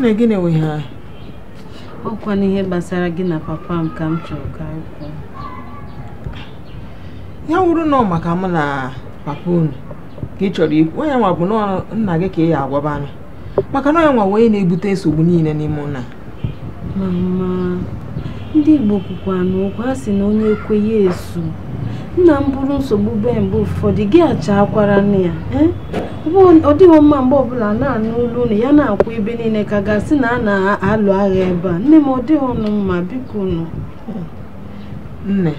nna gị na-enweghị ọkwa n'ihe gbasara gị na papa m ka m chọrọ ka kwuo ya wụrụ nọ maka mụ na papa unu ka ị chọrọ ikwu onye nwa bụ nna gị ka ị ya agwaba maka na onye nwa wee na-ebute nsogbu niile n'ime ụna. mama ndị Igbo kwukwa n'ụkwa ha sị na onye ekweghị esu nna m bụrụ nsogbu be mgbe ụfọdụ gị akwara nne ya eh? ọ dịghị mma mgbe ọbụla na-anụ ụlọ unu ya na-akwụ ebe niile ka gasị na a na-alụ agha ebe a nne m ọ dịghị ọnụ mma biko nọ. nne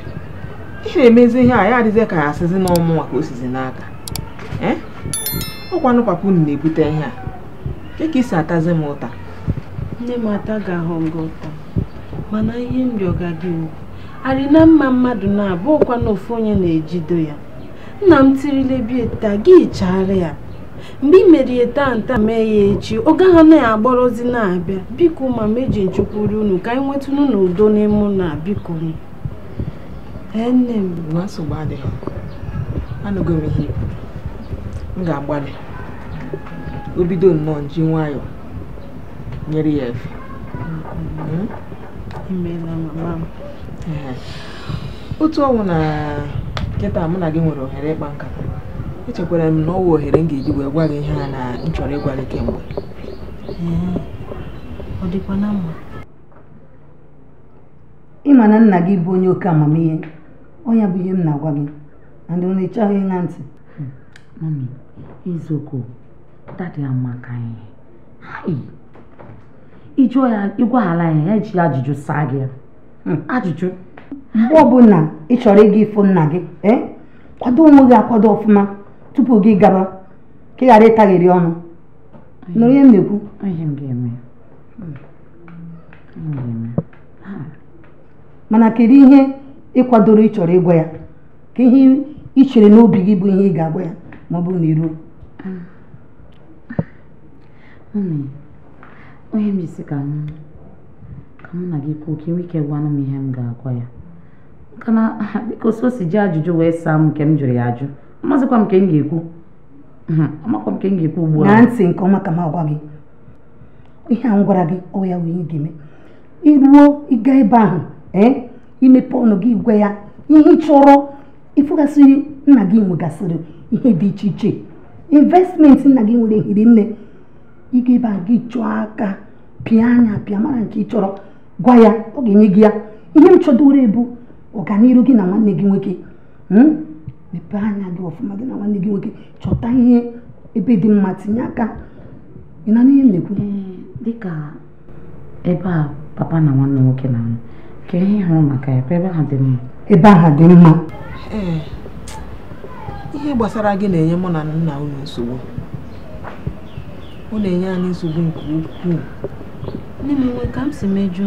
ị na-emezi ihe a ya adịghị ka ya asịzi n'ọmụ nwa ka o sizi n'aka eh? ọkwanụ papa unu na-ebute ihe a nke ka isi atazi m ụta nne m ata ga ahụ gị ụta mana ihe m rịọga gị wu arị na mma mmadụ na-abụ ọkwa na ofu onye na-ejido ya nna m tirile bie taa gị chaara ya mgbe ị merie tanta mee ya echi oge ahụ na-agbọrọzi na-abịa biko ma meji nchekwuru unu ka anyị nweta unu n'udo n'ime na biko nne m ihe m ga-agbalị o bido nnọọ ji nwayọọ nyere ya efe hmm? otu ọnwụ na nkịta mụ na gị nwere ohere ịkpa nkata echekwara m na ọ wụ ohere m ga-eji wee gwa gị ihe a na m chọrọ ịgwa gị kemgbe ọ dịkwa na mma ịma na nna gị bụ onye oke amamihe onye bụ ihe m na-agwa gị and ndị onye ịchọghị ịṅa ntị mami izoko dada amaka ịjụọ ya ịgwaghala ya ya ji ajụjụ saa gị ajụjụ mgbe ọbụla ị chọrọ ịga ifo nna gị eh? kwado onwe gị akwado ọfụma tupu gị gaba ka ị ghara ọnụ nụrụ ihe m na-ekwu mana kedu ihe ị kwadoro ịchọrọ ịgwa ya ka ihe ị chere n'obi gị bụ ihe ị ga-agwa ya ma ọ bụrụ na iruo ah. onye m m gị kwuo ka ajụjụ wee saa m nke m jụrụ ya ajụ amazịkwa m ka m ga-ekwu amakwa m ka m ga-ekwu ugbu a na ntị nke ọma ka m agwa gị ihe a m gwara gị ọ ya wee ga-eme iruo ịga ebe ahụ ee imepe ọnụ gị gwa ya ihe chọrọ ịfụgasịrị nna gị nwegasịrị ihe dị iche iche investment nna gị nwere hiri nne ịga ebe ahụ gị chọọ aka pịa anya pịa mara nke ị chọrọ gwa ya ọ ga-enye gị ya ihe m chọdowere bụ ọganihu gị na nwanne gị nwoke hmm? mepee anya dị ọfụma gị na nwanne gị nwoke chọta ihe ebe dị mma tinye aka ị na n'ihe na-ekwu eh, dịka ebe a papa na nwanne nwoke na ka ihe hụrụ maka ya ebe ha dị mma ebe aha dị mma eh, ihe gbasara gị na-enye mụ na nna unu nsogbu ọ na-enye anyị nsogbu nke ukwuu nne m nwe ka m si mejọ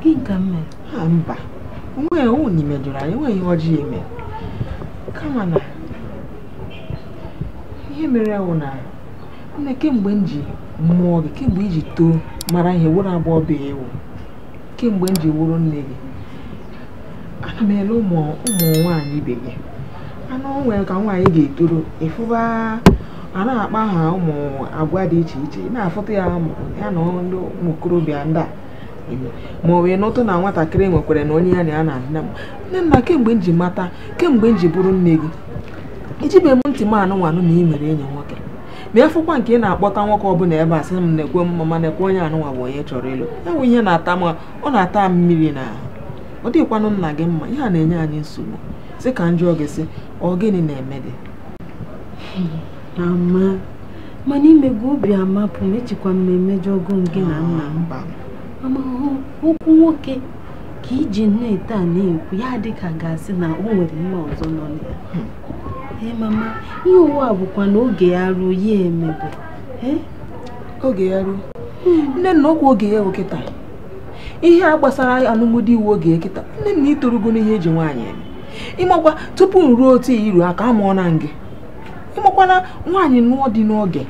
gị nke m mere mba onwe ya ụnụ imejọrọ anyị enweghị ihe ọjọọ ime kama na ihe mere wụ na nne kemgbe m ji mụọ gị kemgbe iji too mara ihe wụrụ abụọ bụ ewu kemgbe m ji wụrụ nne gị ana m ele ụmụ nwanyị nwaanyị ibe gị anụ nwere ka nwaanyị ga-etoro ịfụba a na-akpa ha ụmụ agwa dị iche iche na-afụta ya ya na ndị ụmụ okorobịa ndị a ma ọ na ụtụ na nwatakịrị nwekwara na onye ya na ya na-adị m nne nna kemgbe m ji mata kemgbe nji bụrụ nne gị ijibe m ntị m anụmanụ na ị nwere enyi nwoke ma fụkwa nke ị na-akpọta nwoke bụla ebe a sị m na-ekwe mma na onye anụnwa bụ onye chọrọ ịlụ enwe ihe na-ata m ọ na-ata m mmiri na ọ dịghịkwanụ nna gị mma ihe a na-enye anyị nsogbu sị ka njọ gị sị ọ gịnị na-eme gị hmm, mana imego obi amapụ m echekwa mmemme jọgụ gị na nna m amahụ ụkwụ nwoke ka iji na-ete na-ekwu ya dịka gasị na o nwere mma ọzọ nọ na ya hmm. ee mama ihe ụwa bụkwa na oge ya ruo ya emebe oge ya ruo hmm. nne na ọkwa oge ya kịta ihe a gbasara alụmdi iwu oge kịta nne na itorugo n'ihe eji nwaanyị eme ịmakwa tupu ruo otu iru aka amụọ na gị ịmakwana nwaanyị nụọ dị n'oge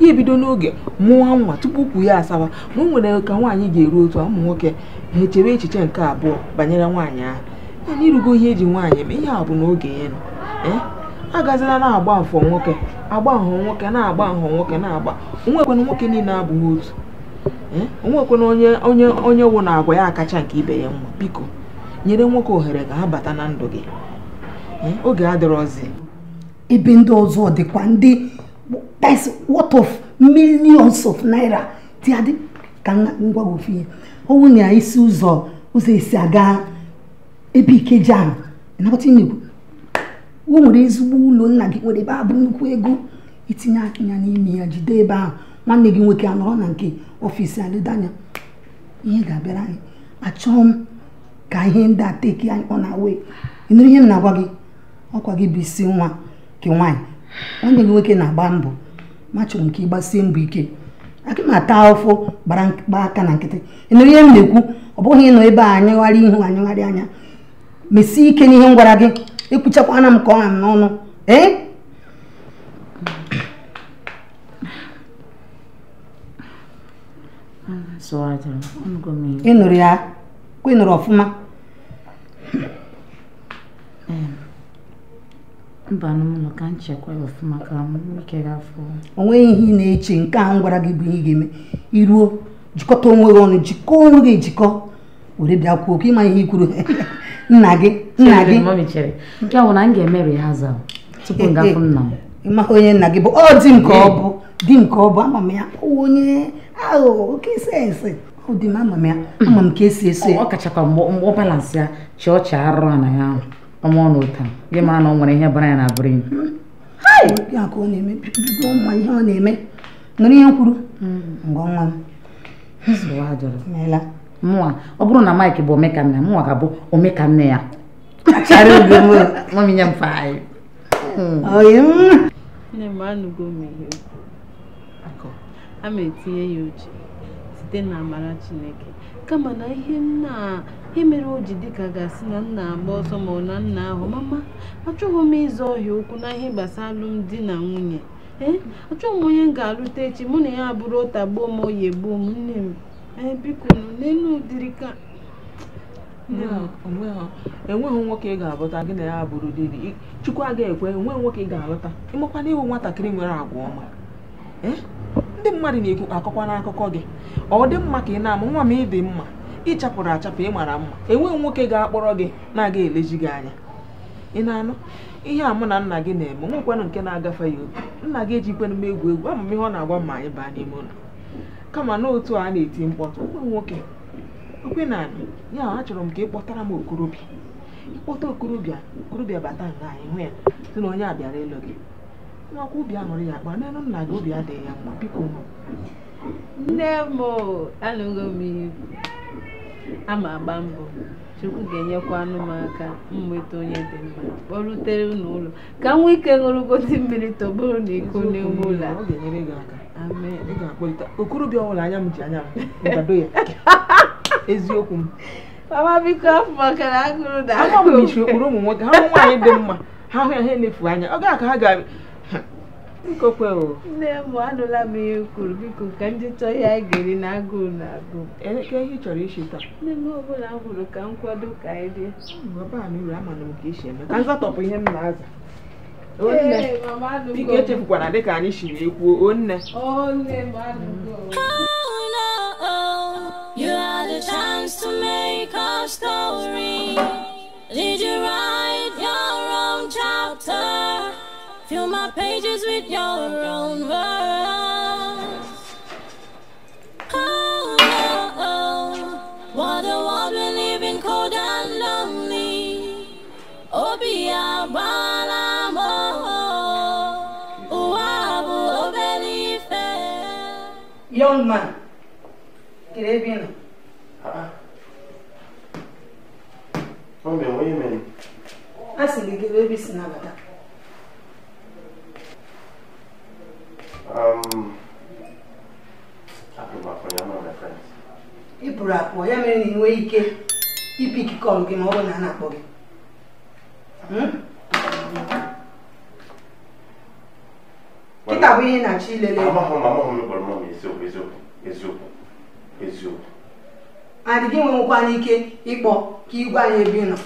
ihe bido n'oge mụọ nwa tupu ukwu ya asawa na o nwere ka nwaanyị ga-eru otu ụmụ nwoke ha echere echiche nke abụọ banyere nwaanyị ahụ na irugo ihe eji nwaanyị ma ihe a bụ n'oge ya agazila na-agba afọ nwoke agba ahọ nwoke na-agba ahọ nwoke na-agba onwekwena nwoke niile abụghị otu onwekwena onye onye onye wụ na agwa ya kacha nke ibe ya nwa biko nyere nwoke ohere ka ha bata na ndụ gị oge adịrọzi ebe ndị ọzọ dịkwa ndị that is what of millions of naira ti adị ka ngwa ofu ihe ọnwụ na isi ụzọ ụzọ esi aga ebe ikeji ahụ ịnabata inekwu o nwere ezigbo ụlọ nna gị nwere ebe a bụ nnukwu ego itinye anya n'ime ya jide ebe ahụ nwanne gị nwoke anọrọ na nke ọfịs aledanya ihe ga-abịara anyị achọghị m ka ihe ndị a teki anyị ọ na-awe ịnụrụ ihe m na-agwa gị ọkwa gị bụ isi nwa nke nwaanyị onye gị nwoke na-agba mbọ ma chọrọ nke ịgbasie mbọ ike aka na-ata ụfụ gbara gba aka na nkịtị ịnụrụ ihe m ọ bụghị ịnọ ebe a anyịgharị ihu anya mesie ike n'ihe m gwara gị ekwuchakwana m ka ọ ha m n'ọnụ ee ịnụrụ ịnụrụ ọfụma mba n'ụlọ ka nchekwa ya ọfụma ka m ike gafọ onweghị nweghị ihe ị na-eche nke ahụ gwara gị bụ ihe ị ga-eme iruo jikọta onwe gị ọnụ jikọ onwe gị ejikọ were bịa kwuo ka ịma ihe ikwuru nna gị nna gị ya bụ na m ga-emeri ha za tupu m gafụ nna m ịmaghị onye nna gị bụ ọ dị nke ọ bụ dị nke ọ bụ ama m ya onye aghụghọ oke sensị ọ dị m ama m ya ama m ka esi eso ọ kachakwa mgbe ọ balansị ya chi ọcha arụrụ na ya ahụ ọmụ ọ n'ụta gị mara na ọ nwere ihe bara ya na abụrụ ya ihe ọ na-eme nụrụ ihe kwuru ọ bụrụ na Mike bụ omekanne mụnwa ga-abụ omekanne ya oge ya uche Chineke kama na ihe nna ihe mere o ji dịka gasị na nna agba ọsọ ma ọ na nna ahụ mama achọghị m ịzụ ọhịa okwu na ihe gbasara alụmdi na nwunye ee achọghị m onye m ga-alụta echi mụ na ya abụrụ ụta gbuo m oyi gbuo m nne m ee biko n'elu ụdịrị ka enweghị nwoke ị ga-alụta gị na ya bụrụ diri chukwu agaghị ekwe enweghị nwoke ị ga-alụta ịmakwana ịhụ nwatakịrị nwere agwa ọma ndị mmadụ na-ekwu akọkwa n'akụkọ gị ọ dị mma ka ị na amụ nwa m ịdị mma ịchapụrụ achapụ ị mara mma enweghị nwoke ga-akpọrọ gị na-aga eleji gị anya ị na-anụ ihe a mụ na nna gị na-eme nwekwanụ nke na-agafe ya obi nna gị ejikwanụ m egwu egwu ama m ihe ọ na-agwa ma anyị baa n'ime ụlọ kama na otu a na-eti mkpọtụ ụmụ nwoke okwe na anyị ya achọrọ m ka ị kpọtara m okorobịa ịkpọta okorobịa okorobịa bata nga anyị hụ ya sị na onye a bịara ịlụ gị nwakwụ obi aṅụrị ya akpa nne nna gị obi adịghị ya mma biko nne m anụghị m iwu ama agba mbọ chukwu ga-enyekwa m aka nweta onye dị mma kpọrutere n'ụlọ ka m nwee ike ṅụrụgodi mmiri tọgburu na iko n'ime ụlọ okorobịa ọbụla anya m ji anya m ya eziokwu m mama biko afọ maka na agụrụ na agụrụ ụmụ nwoke ha nwaanyị dị mma ha hụ ya ha enefu anya ọ ga-aka ha ga nkokwe o nne m anụla m ihe kwuru biko ka ndị chọọ ya geri na agụụ na agụụ elekere ihe ị chọrọ isi taa nne m ọbụla m hụrụ ka nkwado ka anyị rie hm, uru amana m ka isi eme ka m zatọpụ ihe m na-aza onne biko echefukwana dịka anyị siri ekwuo onne You had a chance to make our story. Did you write your own chapter? Fill my pages with your own words. Oh, oh, oh. what the world we live in, cold and lonely. Obi Abalamo. Young man, Caribbean. Ah. uh Mommy, what do you mean? I said, give baby snap. akpọ hmm? ya mere na ị nwee ike ikike ọrụ gị ma ọ bụrụ na a na-akpọ gị kịta bụ ihe na-achọ ilele adị gị nwenwekwana ike ịkpọ ka igwe anyị ebe ị nọ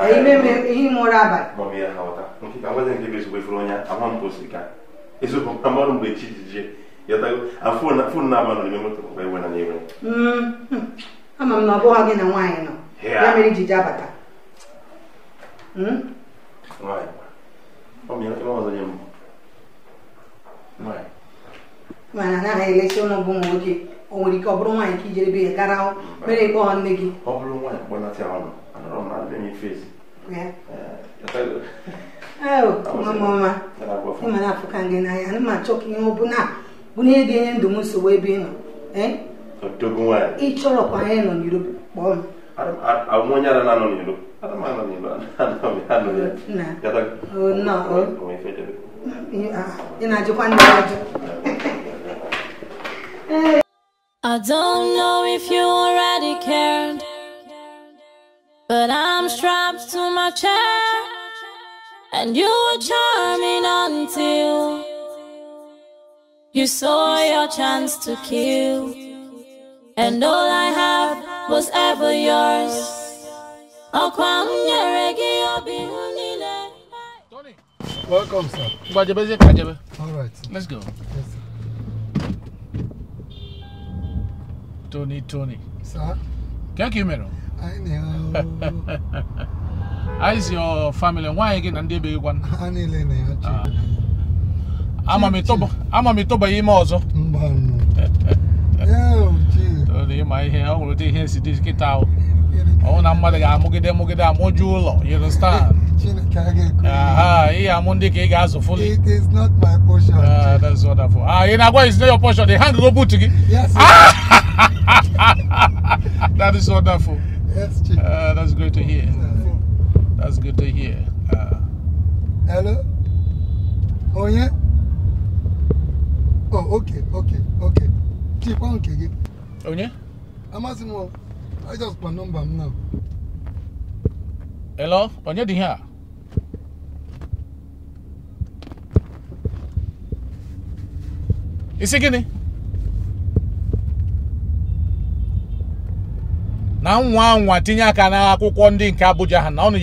ihe ime abalị ama m na ọ bụghị gị na nwaanyị nọ ya mere iji ji abata hmm? mana anaghị elesi ụlọ bụ nwoke o nwere ike ọ bụrụ nwaanyị ka ijere be ya gara mere ịkpọ nne gị ọ bụrụ nwaanyị kpọnata ọnụ anọrọ m na ndị nye fezi eh, mama ịma na-afụka gị n'anya ana m achọ ka ihe ọ bụla bụ na ihe ga-enye ndụ m nsogbu ebe ị nọ eh? ị i do not know if you already cared, but I'm strapped to my chair, and you were charming until you saw your chance to kill and all I have was ever yours. Welcome, sir. All right. Sir. Let's go. Yes, Tony, Tony. Sir? Thank you, Mero. I know. How is your family? Why again? And they be one. I'm a mitoba. I'm a mitoba. I'm a mitoba. obodo na ịma ihe ọ nwere ụdị ihe si dị kịta ọnwụ na mmadụ ga-amụgide amụgide amụju ụlọ you understand ihe amụ ndị ka ị ga-azụ fuli ah, that's wonderful ah ị na is not your portion the hand go boot Yes. that is wonderful yes, uh, that's great to hear that's good to hear uh, hello oh yeah oh okay okay okay keep on kicking Onye? Amasimo. I just put number now. Hello? Onye dị here? Isi gịnị? Na nwa nwa tinye aka n'akwụkwọ ndị nke Abuja ha na ọ na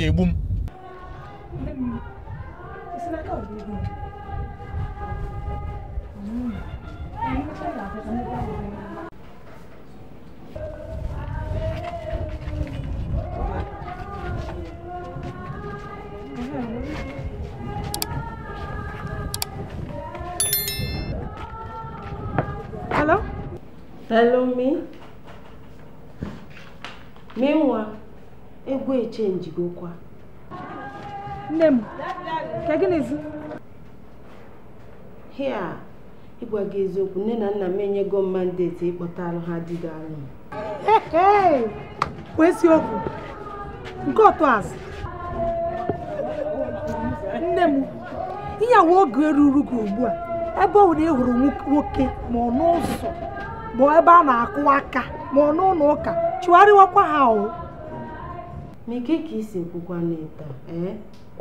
Hello, me. Me nwa, egwu echenji gokwa. Nne m, ka gịnịzi? Hia, ịgwa gị eziokwu, nne na nna m enyego mandeti ịkpọta alụ ha di gị alụ. Kwụ eziokwu, nke otu asị. Nne m, ihe awa oge ruru gị ugbu a, ebe ọ bụ na nwoke ma ọ n'ụzọ. bụ ebe a na-akụ aka ma ọ n'ụlọ ụka chụgharịwakwa ha ọwụ ka isi ekwukwa n'ịta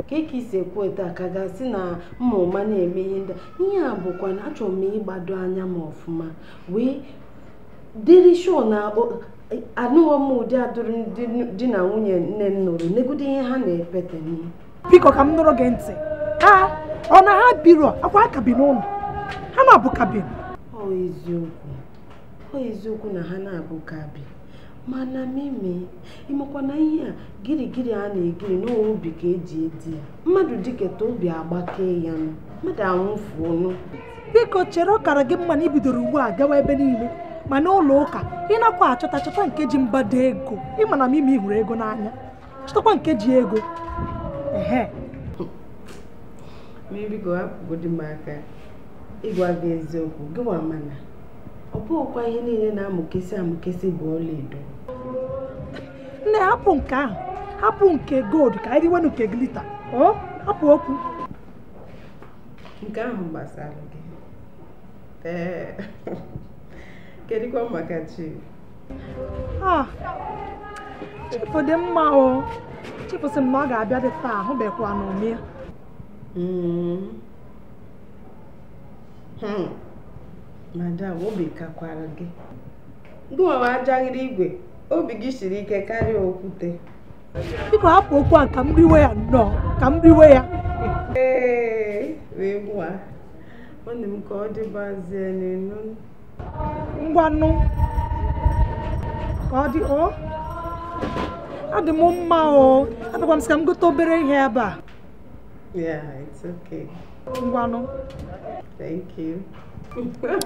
keka eh? isi ekwu taa ka ga-asị na mma ụma na-eme ihe ndị ihe a bụkwa na achọrọ m ịgbado anya m ọfụma wee dịrị sho na anụghọ m ụdị adụrụ ndị di na nwunye nne m nụrụ n'egide ihe ha na-epete m. biko ka m nụrụ gị ntị ha ọ na ha biro akwa akabi n'ụlọ ha na-abụkabi ọ eziokwu ọ eziokwu na ha na-abụ kabi mana mimi ịmakwa na ihe a girigiri a na-egiri ubi ka eji edi ya mmadụ dịketa obi agbakee ya nụ mmadụ anwụfuonụ biko chere ọkara gị mma na ibidoro ugbu a gawa ebe niile ma ụlọ ụka ịnakwa achọta chọta nke ji mbado ego ịma na mimi hụrụ ego n'anya chọtakwa nke ji ego ehe ịgwa gị eziokwu mana ọ bụghịkwa ihe niile na-amụkesị amụkesị bụ ọlaedo nne hapụ nke ahụ hapụ nke gold ka anyị riwe nke glita hapụ okwu nke ahụ gbasara gị ee kedụkwa maka chi chifu dị mma o chifu dị mma ọ ga-abịa dị taa ahụbekwa n'ome hmm. hmm. madam obi kakwara gị gị nwewe ajaghịrị igwe obi gị siri ike karịa okwute biko hapụ okwu a ka m riwe ya nọ ka m riwe ya ee wee gwa nwanne ka ọ dịbazie n'elu ngwanụ ka ọ dị ọ adị m mma o abịakwa m sị ka m gote obere ihe ebe a it's okay ngwanụ Vai.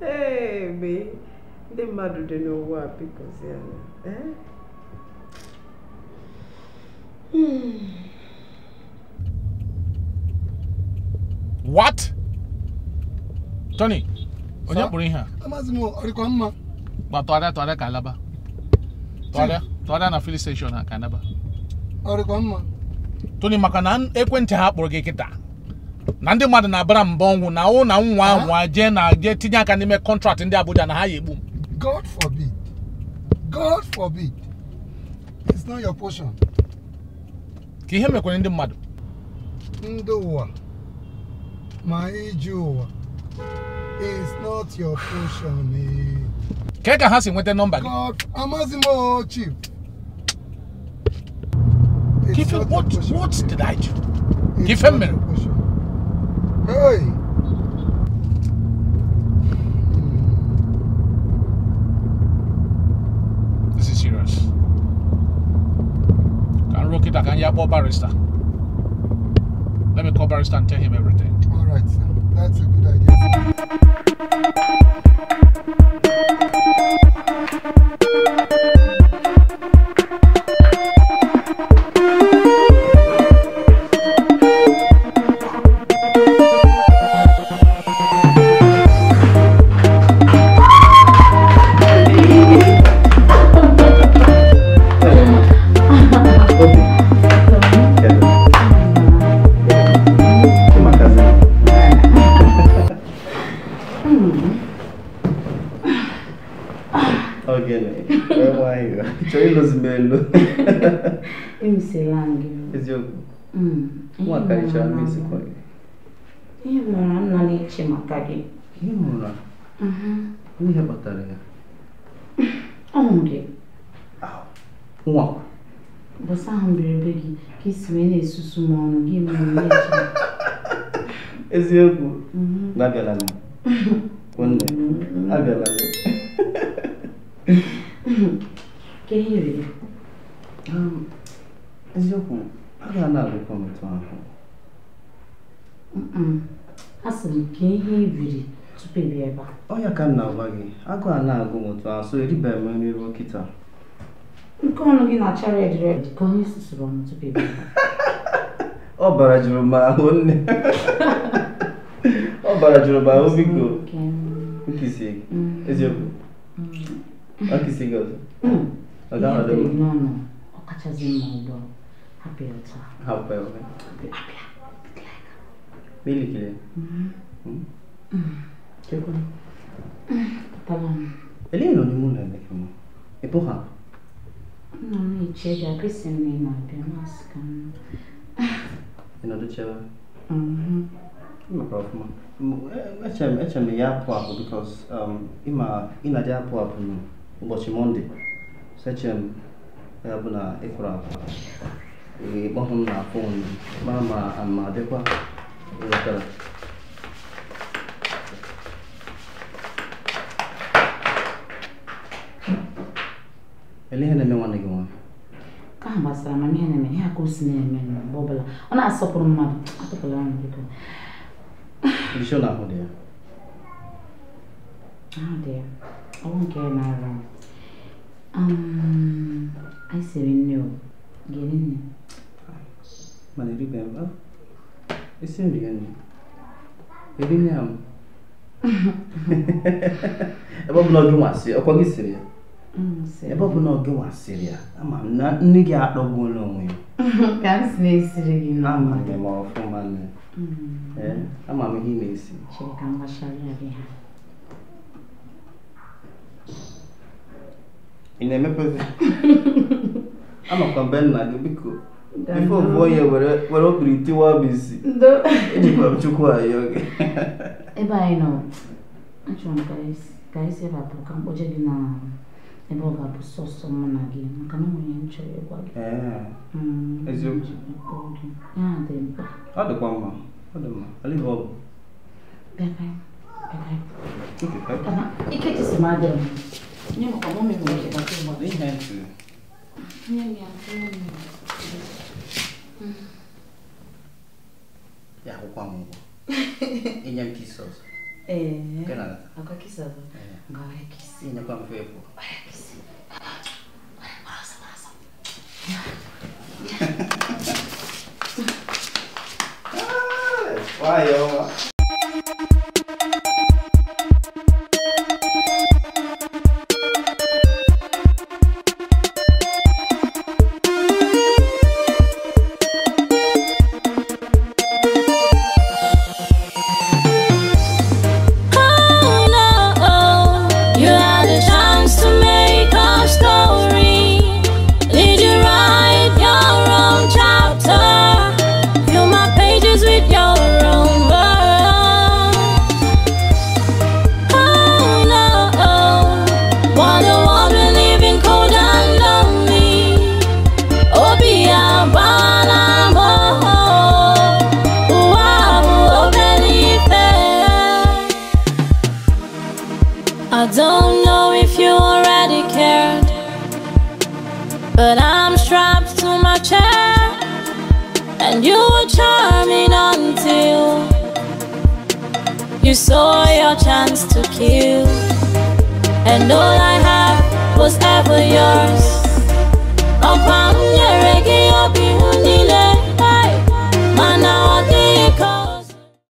hey, me. Ndị mmadụ dị n'ụwa bikozie eh? hmm. What? Tony, onye kpụrụ ihe a? Amazi m, ọ dịkwa mma? Gba tụgharịa tụgharịa ka alaba. tụgharịa na filin steshọn ha ka mma toni maka na ekwentị ha kpọrọ gị kịta na ndị mmadụ na-abara mbọ ọnwụ na awụ na nwa ahụ jee na jee tinye aka n'ime kọntraktị ndị Abuja na ha ya egbu m God forbid God forbid it's not your portion ka ihe mekwere ndị mmadụ ndị ụwa ma iji ụwa it's not your portion eh. ị ka ha si nweta nọmba gị amaghịzi m what, what did I do? Give him mere. Hey. Hmm. This is serious. Can rock it, I can yabo barrister. Let me call barrister and tell him everything. All right, sir. That's a good idea. emechaa mezikwa gị ihe mara nna maka gị ihe mụra ihe kpatara ya ọ nwụrụ nwa bụsa ahụ mberede gị ka isi wee na-esusu m ọnụ gị mere eziokwu abịala nne abịala ka eziokwu a ga na-alụkọ ahụ asị m ka ihe ibiri tupu ị bịa ebe a ọnya ka m na-agwa gị agụ a na-agụ m otu asụ eribeghị m nri ruo nke ọnụ gị na-acha red ka onye susuru m tupu ị bịa ọ bara jụrụ m ahụ nne ọ bara jụrụ m ahụ biko nkisie gị mm. eziokwu mm. nkisie gị ọzọ mm. ọ ga-ahọdụ m ọkachasị mma ụgbọ hapụ ya ọtọ hapụ ya ọtọ Bilgili. ¿Qué con? Tamam. Elena ni munda ndeke mu. Epoha. No mi chega kesi ni ma pe maska. Ina do chewa. Mhm. Ima prof mu. Echem echem ya apụ apụ because um ima ina ja apụ apụ mu ụbọchị Monday. Sechem ya e, e, e, bụ na ịkwụrụ apụ. Ị kpọhụ m na fon mara Ini hanya mengenai kamu. Kamu masih ramai nih, nih aku sendiri, nih bobola. Oh, nah, sopir mama, aku pelan gitu. Bisa lah, aku dia. Ah, dia. Aku mungkin nara. Um, I see you new. Gini nih. Mana ini Ese gani? Elinya m. Ebe ọbụla gị nwasị, ọkwa gị siri ya? Ebe ọbụla gị nwasịrị ya, ama m na nne gị akpọgbuola onwe ya. Ka m si na-esiri gị nọ. Ama gị ma ọfụma nne. Mm. Eh, ama m ihe ị na-esi. Chere ka m gbachara ya gị ha. Ị na-emepezi? Amakwa mbe nna gị biko. Before boy, wara kuritiwa bisi. Ndo. Ndiba mchukua yoge. Eba ino. Acho mkaisi. Kaisi cam buka mboje gina. Eba eu bu soso mwana gina. Makana mwenye mcho yogwa gina. Eee. Ezi mcho. Ya ade ah Ade kwa mwa. Ade mwa. Ali hobo. Bekai. Bekai. Ike kai. Kana. Ike tisi madem. Nyemo kwa mwome mwenye kwa kwa mwa. Ni hentu. Nyemo ya kwa mwa. mm. yako kwa Mungu inyakisoso eh kana akakisazo e. ngawe kisi kwa mfepo kisi barasa barasa Vai, saw your chance to kill And all I had was ever yours